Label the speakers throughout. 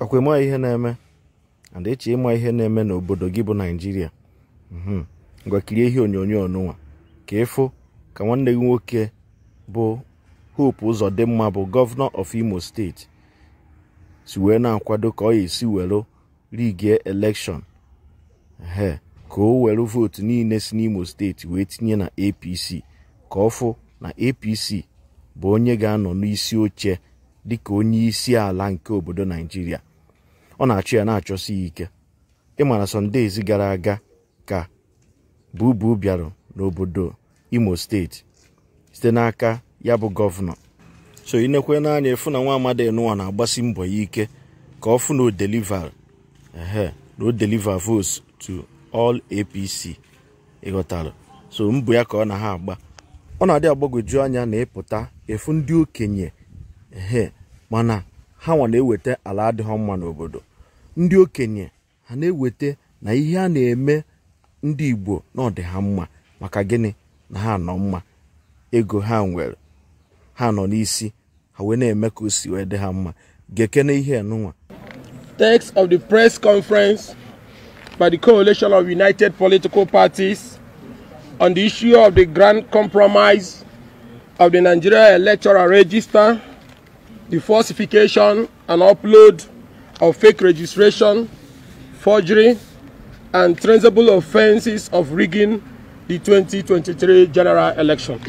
Speaker 1: ọkwa ịma ihe na-eme and ịma ihe na-eme n'obodo gị bụ naijiria mhm. ngwa kirie ihe onyonyo ọnụnwa ka ịfụ ka nwanne gị nwoke bụ hope ụzọ dị mma bụ gọvanọ of imo steeti si wee na-akwado ka ọ ya esi were rigie elekshọn he ka o were vootu niile si n'imo steeti wee tinye na apc ka ọ fụ na apc bụ onye ga-anọ n'isi oche dịka onye isi ala nke obodo naijiria ọ na-achọ ya na-achọsi ya ike ịmara sọndezi gara aga ka bubu bịara n'obodo imo steeti site n'aka ya bụ gọvanọ so inekwe n'anya efu na nwa amadi enụwa na-agbasi mbọ ya ike ka ọ fụ na o deliver ehe na o deliver to all apc ịghọtara so mbụ ya ka ọ na ha agba ọ na-adị agbagwoju anya na ịpụta efu ndị okenye ehe mana ha nwa na-eweta ala adịghị mma n'obodo ndị okenye ha na-eweta na ihe a na-eme ndị igbo na dị ha mma maka gịnị na ha nọ mma ego ha nwere ha nọ n'isi ha wee na-eme ka o si wee dị ha mma gekene ihe nụnwa Text of the press conference by the Coalition of United
Speaker 2: Political Parties on the issue of the Grand Compromise of the Nigeria Electoral Register the falsification and upload of fake registration, forgery, and traceable offenses of rigging the 2023 general election.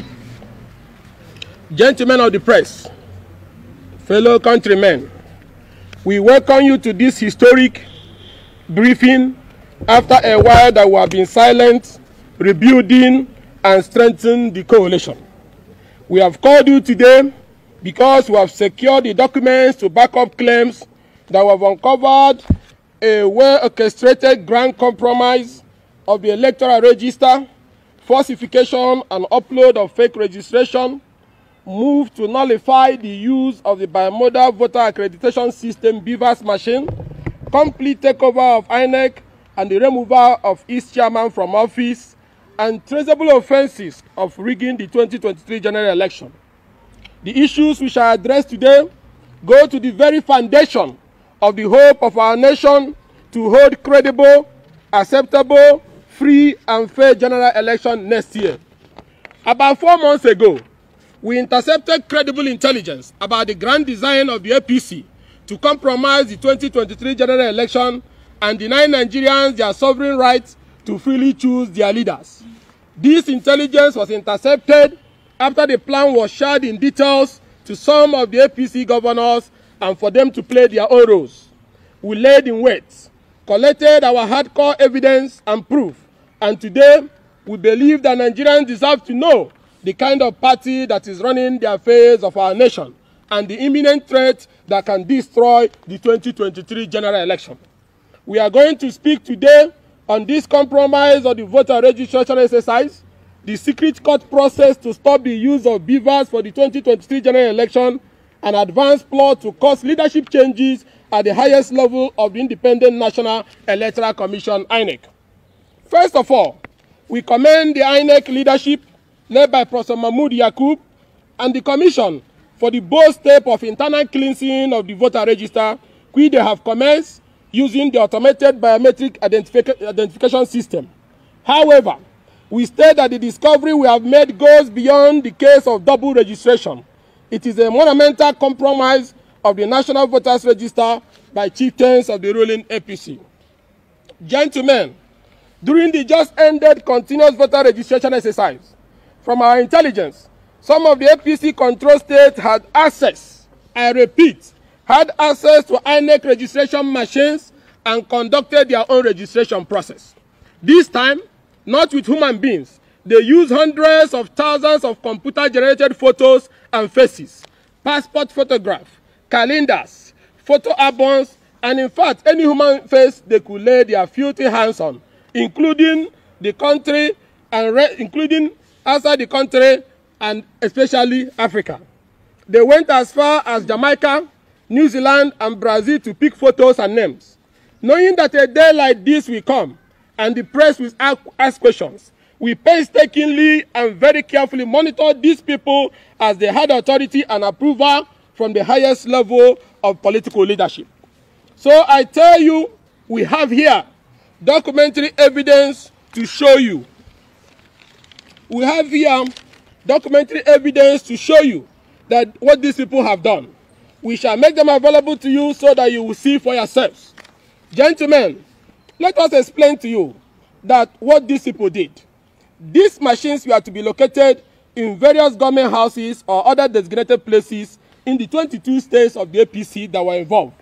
Speaker 2: Gentlemen of the press, fellow countrymen, we welcome you to this historic briefing after a while that we have been silent, rebuilding, and strengthening the coalition. We have called you today because we have secured the documents to back up claims that we have uncovered a well-orchestrated grand compromise of the electoral register, falsification and upload of fake registration, move to nullify the use of the biomodal voter accreditation system (Beavers machine, complete takeover of INEC and the removal of its chairman from office, and traceable offences of rigging the 2023 general election. The issues we shall address today go to the very foundation of the hope of our nation to hold credible, acceptable, free and fair general election next year. About four months ago, we intercepted credible intelligence about the grand design of the APC to compromise the 2023 general election and deny Nigerians their sovereign right to freely choose their leaders. This intelligence was intercepted after the plan was shared in details to some of the APC governors and for them to play their own roles. We laid in wait, collected our hardcore evidence and proof, and today we believe that Nigerians deserve to know the kind of party that is running the affairs of our nation and the imminent threat that can destroy the 2023 general election. We are going to speak today on this compromise of the voter registration exercise, the secret court process to stop the use of beavers for the 2023 general election, an advanced plot to cause leadership changes at the highest level of the Independent National Electoral Commission, INEC. First of all, we commend the INEC leadership led by Professor Mahmoud Yakub and the Commission for the bold step of internal cleansing of the voter register, which they have commenced using the automated biometric identific identification system. However, we state that the discovery we have made goes beyond the case of double registration. It is a monumental compromise of the National Voters Register by chieftains of the ruling APC. Gentlemen, during the just-ended continuous voter registration exercise, from our intelligence, some of the APC-controlled states had access, I repeat, had access to INEC registration machines and conducted their own registration process. This time, not with human beings. They use hundreds of thousands of computer-generated photos and faces, passport photographs, calendars, photo albums, and in fact, any human face they could lay their filthy hands on, including the country and re- including outside the country and especially Africa. They went as far as Jamaica, New Zealand, and Brazil to pick photos and names. Knowing that a day like this will come, and the press will ask, ask questions. We painstakingly and very carefully monitor these people as they had authority and approval from the highest level of political leadership. So I tell you, we have here documentary evidence to show you. We have here documentary evidence to show you that what these people have done. We shall make them available to you so that you will see for yourselves. Gentlemen, Let us explain to you that what these people did. These machines were to be located in various government houses or other designated places in the 22 states of the APC that were involved.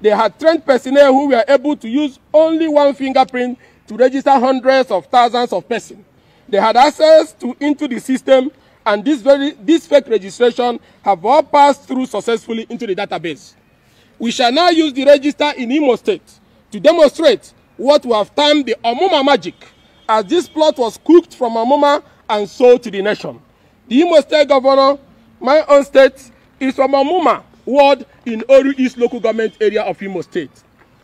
Speaker 2: They had trained personnel who were able to use only one fingerprint to register hundreds of thousands of persons. They had access to into the system and this, very, this fake registration have all passed through successfully into the database. We shall now use the register in Imo State to demonstrate what we have termed the Omuma magic, as this plot was cooked from Omuma and sold to the nation. The Imo State Governor, my own state, is from Omuma ward in Oru East local government area of Imo State.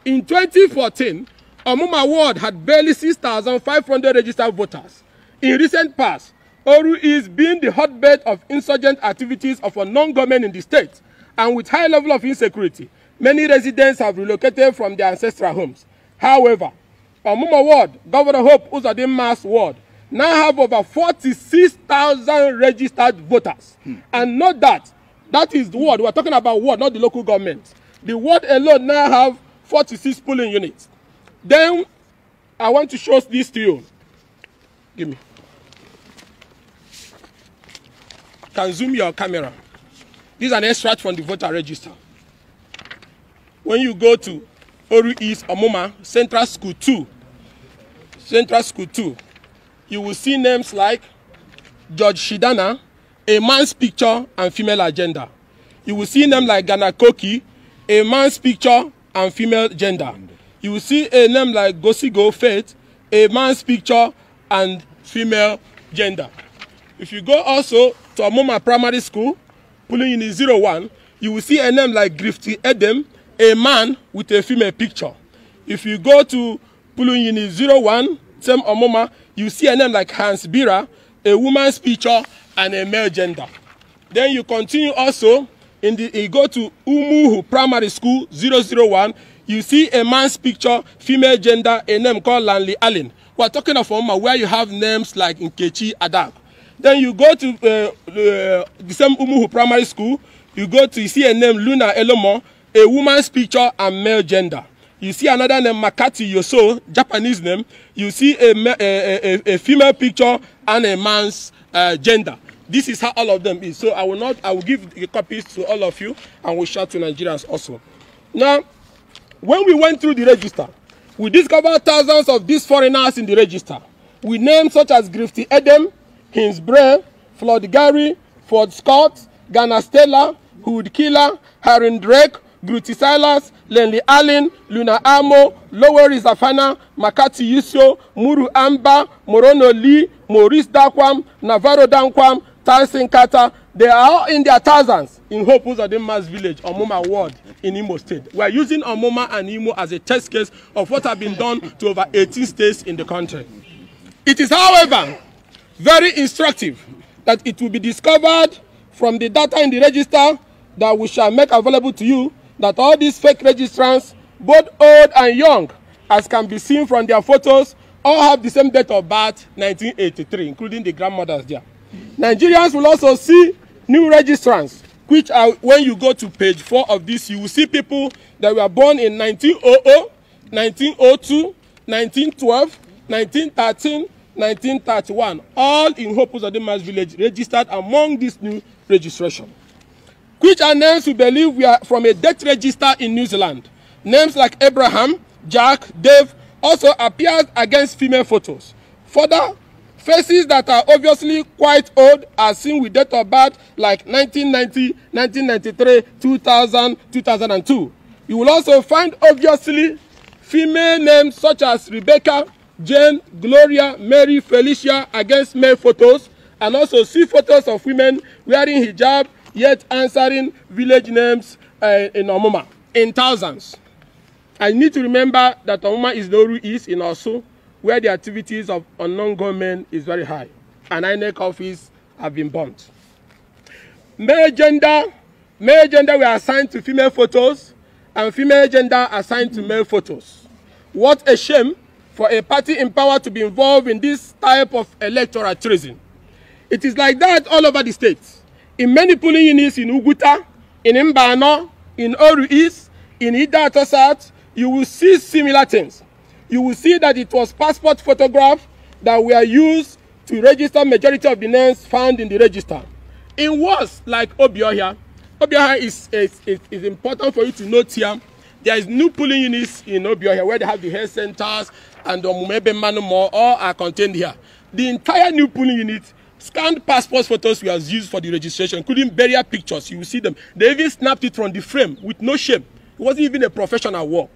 Speaker 2: In 2014, Omuma ward had barely 6,500 registered voters. In recent past, Oru East being the hotbed of insurgent activities of a non-government in the state, and with high level of insecurity, many residents have relocated from their ancestral homes. However, Omuma Ward, Governor Hope Uzodinma's ward, now have over 46,000 registered voters. Hmm. And not that, that is the ward, we're talking about ward, not the local government. The ward alone now have 46 polling units. Then, I want to show this to you. Give me. Can zoom your camera. This is an extract from the voter register. When you go to Oru East Omuma Central School 2. Central School 2. You will see names like George Shidana, a man's picture and female agenda. You will see names like Ghana Koki, a man's picture and female gender. You will see a name like Gosigo Faith, a man's picture and female gender. If you go also to Amoma Primary School, pulling in 01, you will see a name like Grifty Edem, a man with a female picture. If you go to Puluyini 01, Tem Omoma, you see a name like Hans Bira, a woman's picture and a male gender. Then you continue also, in the, you go to Umuhu Primary School 001, you see a man's picture, female gender, a name called Lanley Allen. We are talking of Oma where you have names like Nkechi Adam. Then you go to uh, uh, the same Umuhu Primary School, you go to, you see a name Luna Elomo, a woman's picture and male gender. You see another name, Makati Yoso, Japanese name. You see a, a, a, a female picture and a man's uh, gender. This is how all of them is. So I will not, I will give the copies to all of you and we'll share to Nigerians also. Now, when we went through the register, we discovered thousands of these foreigners in the register. We names such as Grifty Edem, Hinsbray, Flood Gary, Ford Scott, Ghana Stella, Hood Killer, Harren Drake, Gruti Silas, Lenley Allen, Luna Amo, Loweri Zafana, Makati Yusio, Muru Amba, Morono Lee, Maurice Dakwam, Navarro Dankwam, Tyson Carter. They are all in their thousands in Hope mass village, Omoma Ward in Imo State. We are using Omoma and Imo as a test case of what has been done to over 18 states in the country. It is, however, very instructive that it will be discovered from the data in the register that we shall make available to you that all these fake registrants, both old and young, as can be seen from their photos, all have the same date of birth, 1983, including the grandmothers there. Nigerians will also see new registrants, which are when you go to page four of this, you will see people that were born in 1900, 1902, 1912, 1913, 1931, all in Hope Zadima's village registered among this new registration which are names we believe we are from a death register in New Zealand. Names like Abraham, Jack, Dave also appear against female photos. Further, faces that are obviously quite old are seen with date of birth like 1990, 1993, 2000, 2002. You will also find obviously female names such as Rebecca, Jane, Gloria, Mary, Felicia against male photos and also see photos of women wearing hijab yet answering village names uh, in Omuma in thousands. I need to remember that Omuma is Noru East in Osu, where the activities of unknown gunmen is very high, and INEC office have been burnt. Male gender, male gender were assigned to female photos, and female gender assigned to male photos. What a shame for a party in power to be involved in this type of electoral treason. It is like that all over the state in many polling units in Uguta, in Mbano, in Oru East, in Idato South, you will see similar things. You will see that it was passport photographs that were used to register majority of the names found in the register. In words like Obioha, Obioha is, is, is, is important for you to note here. There is new polling units in Obioha where they have the health centers and the Mumebe Manu more, all are contained here. The entire new polling unit Scanned passport photos were used for the registration, including burial pictures. You will see them. They even snapped it from the frame with no shame. It wasn't even a professional work.